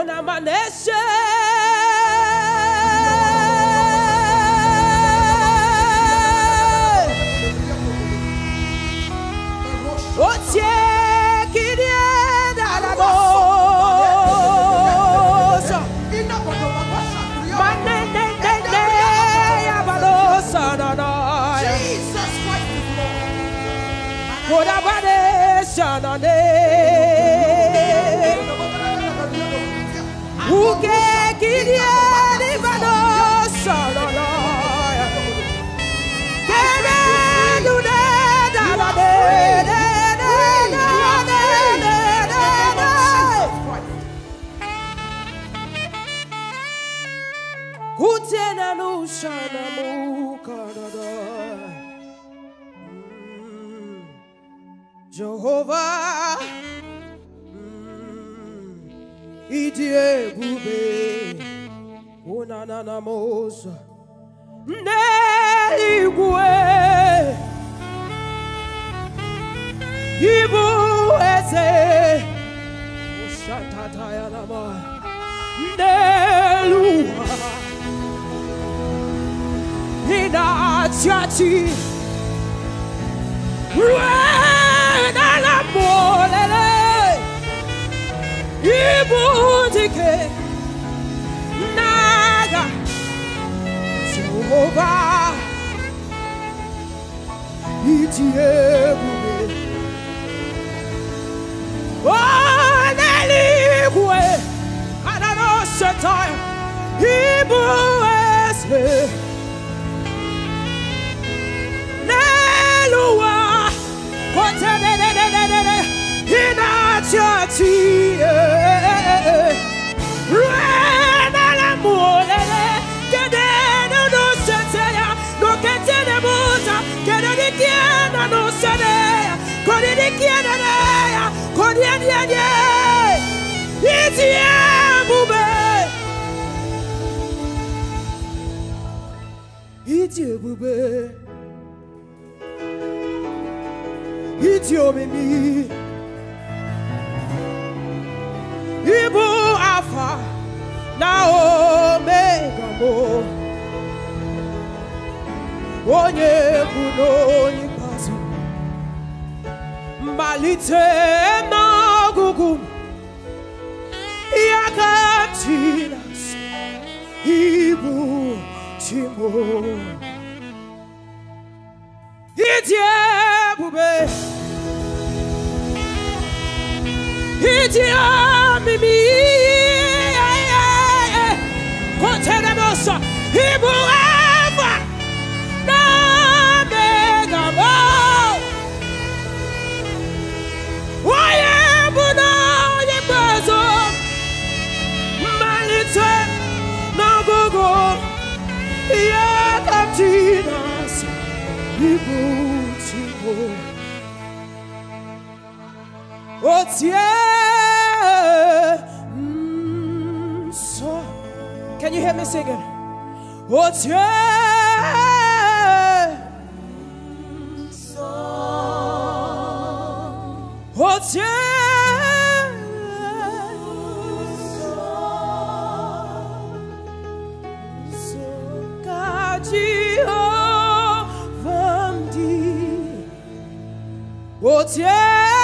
aún amanece. O te quería dar amor. शनमु mm. Jehovah mm. Idi ebube Onana na mozo N'eligwe Ibu eze Ushatataya nama N'eluha Nati Rwena la molele Ibudike Naga Jehovah Itiebube Onelikwe Adano Shetai Ibudike hiç bube hiç obemi ibu afa na omega mo onye kwuru onye ikpeazụ mmalite n'ọgụgụ ihe ibu E diabo, beijo E diabo What's Oh, yeah. Mm, so. Can you hear me singing? Oh, yeah. song? so. Oh, yeah. Jesus. Yeah.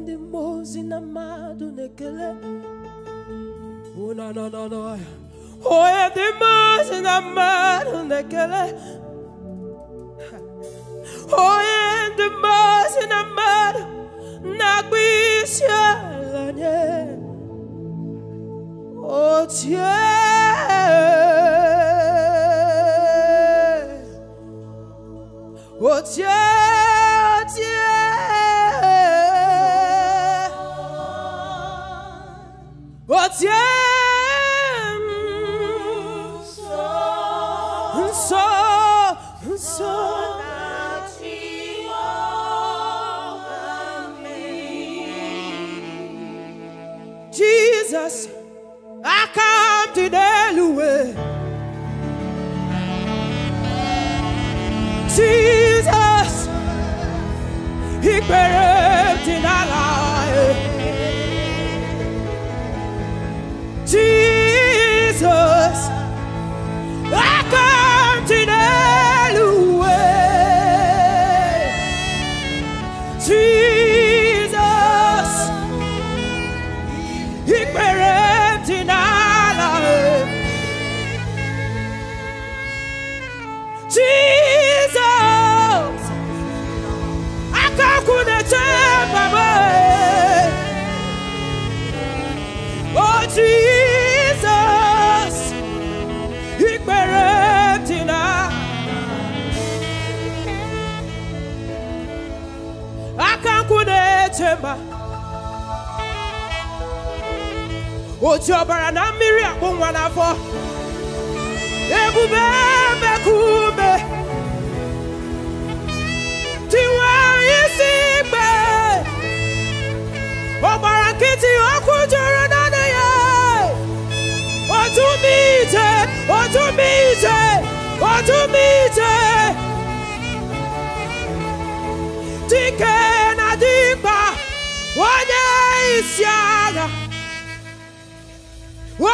kandi mmozi uh, oh, oh, na mmadụ na-ekele ụnanọ nọ n'ọhịa onye dị mmozi na mmadụ na-ekele onye dị mmozi na mmadụ otu ọbara na mmiri akpụ nwa n'afọ ebube mekụ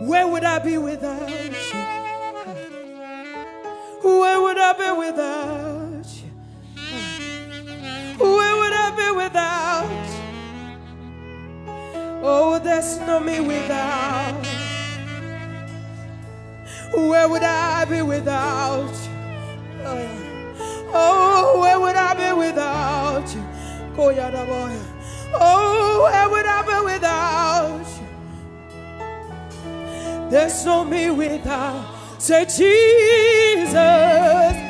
Where would I be without you? Where would I be without you? Where would I be without? Oh, there's no me without. Where would I be without? Oh, where would I be without you? Oh, where would I be without you? Oh, there's no me without. Say, Jesus.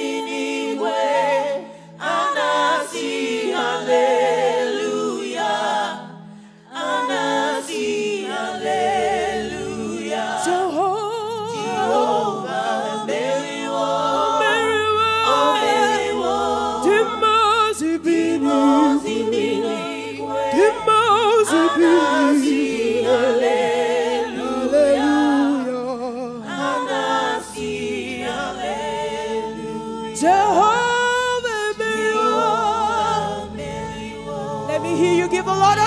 vivo, Lord,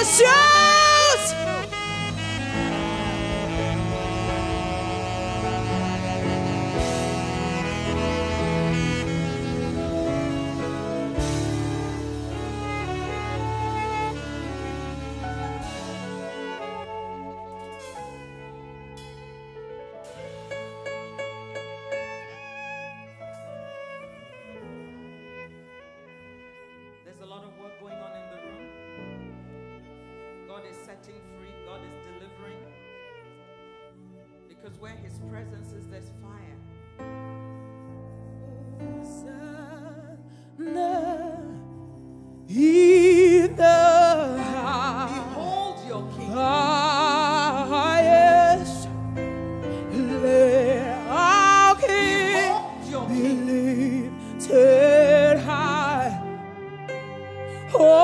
setting free, God is delivering. Because where His presence is, there's fire. Behold your king. Behold your king. Lifted high. Oh.